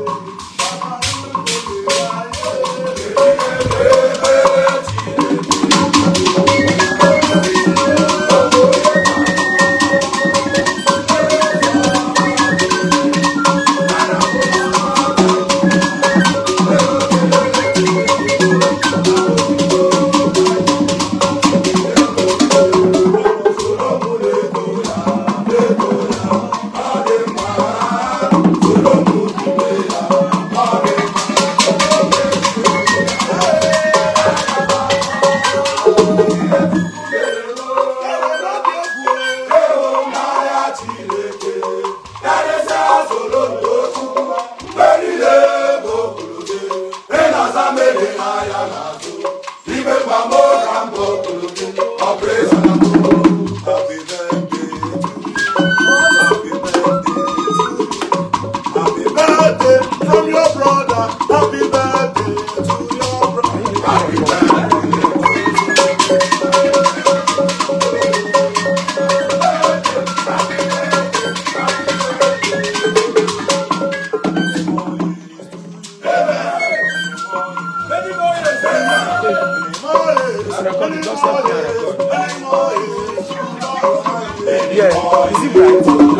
Baba, from your brother. Happy birthday to your brother. Happy birthday. Yeah, is it bright?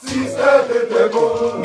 Sister Lelebo.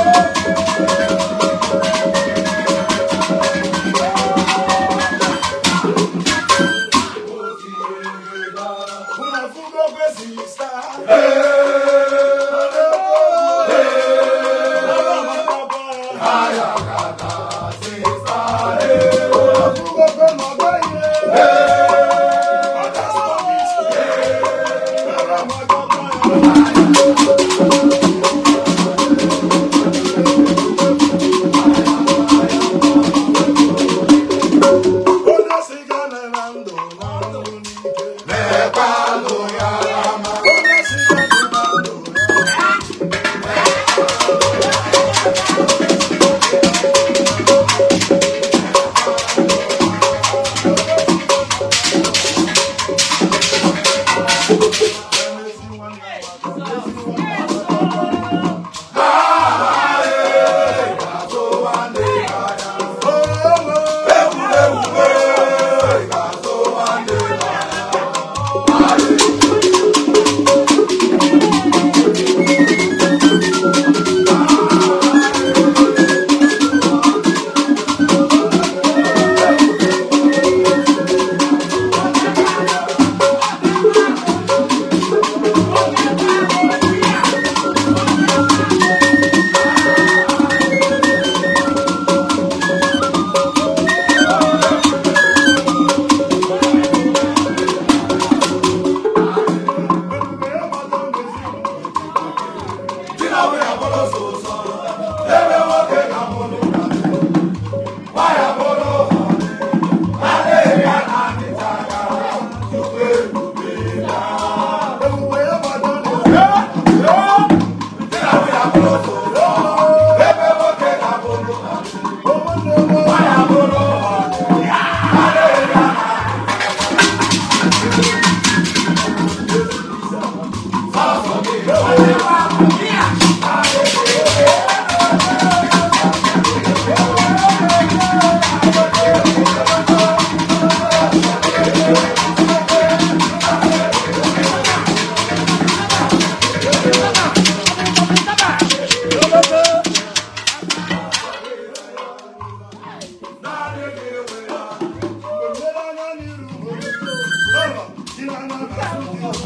フフフフ。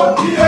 Oh, yeah.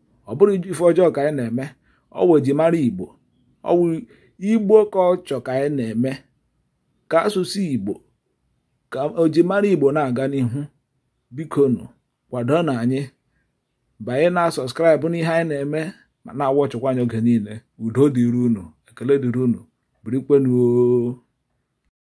ọ bụrụ ife ọjọọ ka anyị na-eme ọ wụ ji mara igbo ọ wụ igbo ka ọ chọ ka anyị na-eme ka asụsụ igbo ka o ji mara igbo na-aga n'ihu biko nụ kwado na anyị banye na sọskraịbụ n'ihe anyị na-eme ma na ọchọkwa anyị oge niile udo dịrị unu ekele dịrị unu birikwenuo